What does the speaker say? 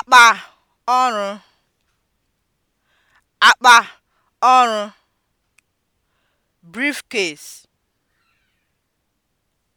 akpa ọrụ akpa ọrụ briefcase